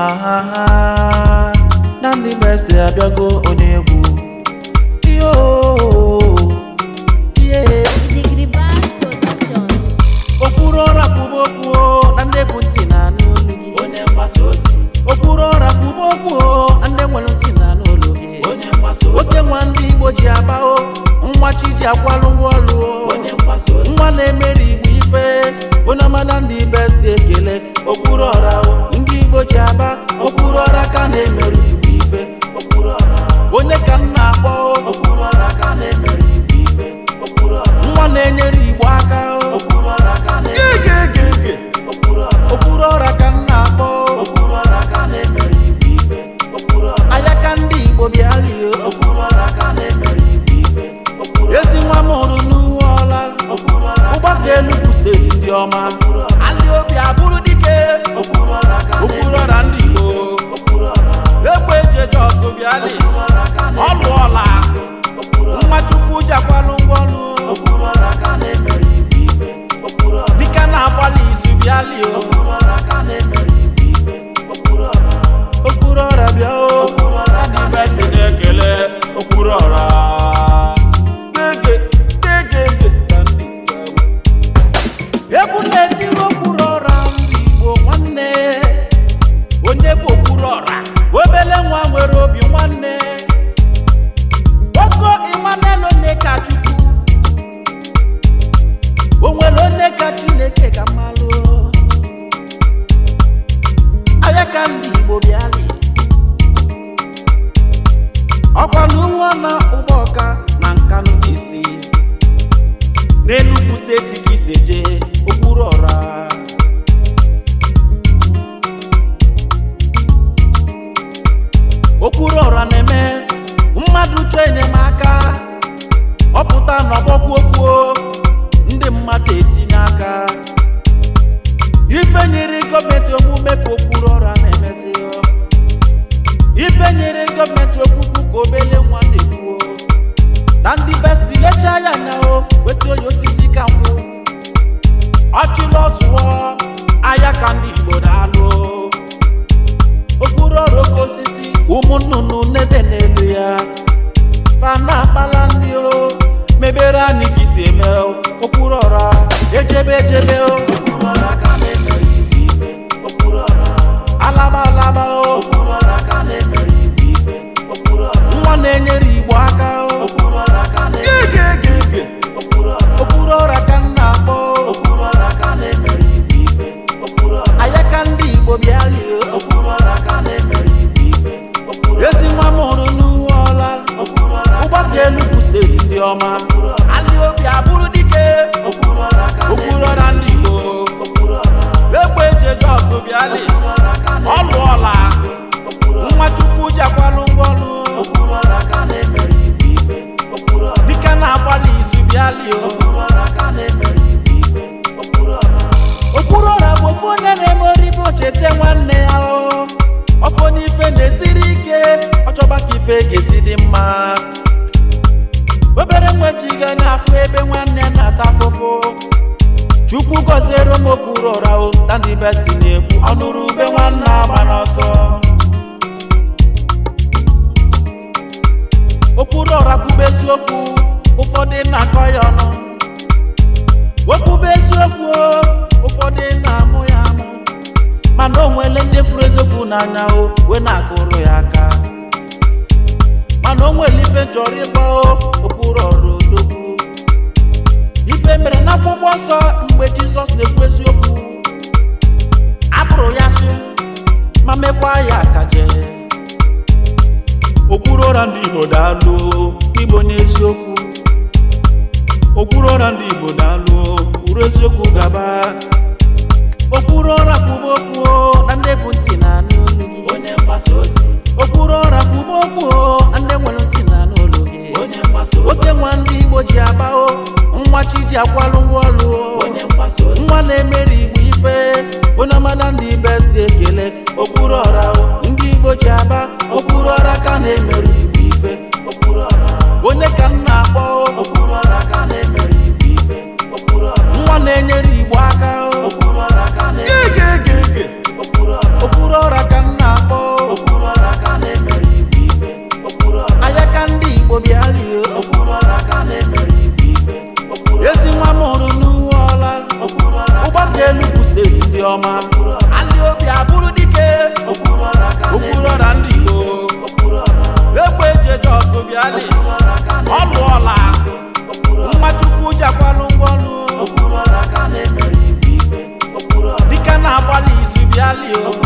aha ndị best abịago onye egwu okpuru ọra kwuba okwu na ndị bụ ntị na anụ olu gị okpuru ọra na ndị nwere ntị na anụ olu gị ote nwa ndị Igbo ji agbao nwa chi ji akwalụ ozi. nwa na-emeri ife onye ọma na ndị ekele okpuru ọra na-enyere Igbo aka ka igbo bịali na ụgbọ ọka na nkanu isti n'enugwu steeti ka isi jee okpuru ọra okpuru ọra na-eme mmadụ chọọ enyemaka ọpụta na ọgbọkwuokwuo ndị mmadụ etinye aka ife nyere gọọmenti gọọmenti okwukwu ka obele nwa na-ekwuo na ndị besti lechaa ya na o weta onye osisi ka nkwụ ọchịlụ ọzụwọ ahịa ka ndị igbo na-alụ okpuru ọrụ oke osisi ụmụ nnụnụ n'ebe n'elu ya fana akpala ndị o mebere eme okpuru ọra ọma alị obi abụrụ dike okpuru ọra ndị Igbo egbe eji ọgụ bịalị ọlụ ọla nwa Chukwu jakwalụ ngwọlụ dike na-agbalị izu bịalị okpuru bụ ofu onye na-eme oribo cheta nwanne ya o n'ife na-esiri ike ọ chọba ka ife ga-esi dị mma obere nwejiga na-afụ ebe nwanne na-ata afụfụ chukwu gọziere m okpuru ụra ụtandi besti na-ekwu ọnụrụ ube nwanne agba n'ọsọ okpuru ọra kwube eziokwu ụfọdụ na-akọ ya ọnụ okwube eziokwu ụfọdụ na-amụ ya amụ mana o nwere ndị furu eziokwu n'anya okwuru ụra ndị Igbo daalụ Igbo n'eziokwu okwuru ụra ndị Igbo daalụ uru eziokwu gaba okwuru ụra kwuba okwu na ndị bụ ntị na-anụ onye mgbasa ozi okwuru ụra kwuba okwu na ndị nwere ntị na-anụ olu gị onye mgbasa ozi ose nwa ndị Igbo ji agbao nwa chi ji akwalụ ngwa onye mgbasa ozi nwa na-emeri Igbo ife onye amada ndị besti ekele okwuru ọra ndị Igbo ji aba okpuru ọra ka na-emere igbo ife onye ka m na-akpọ okpuru ọra ka na-emere igbo ife nwa na-enyere igbo aka okpuru ọra ka na-egegege okpuru ọra ka m na-akpọ okpuru ọra ka na-emere igbo ife anya ka ndị igbo bịa rie okpuru ọra ka na-emere igbo ife ezi nwa m hụrụ n'uwe ọla ụgbọka Enugu steeti dị ọma alị obi abụrụ dike Obiali ọ lụọla mmachukwu jakwalụ ngwọlụ dike na-agbalị izu o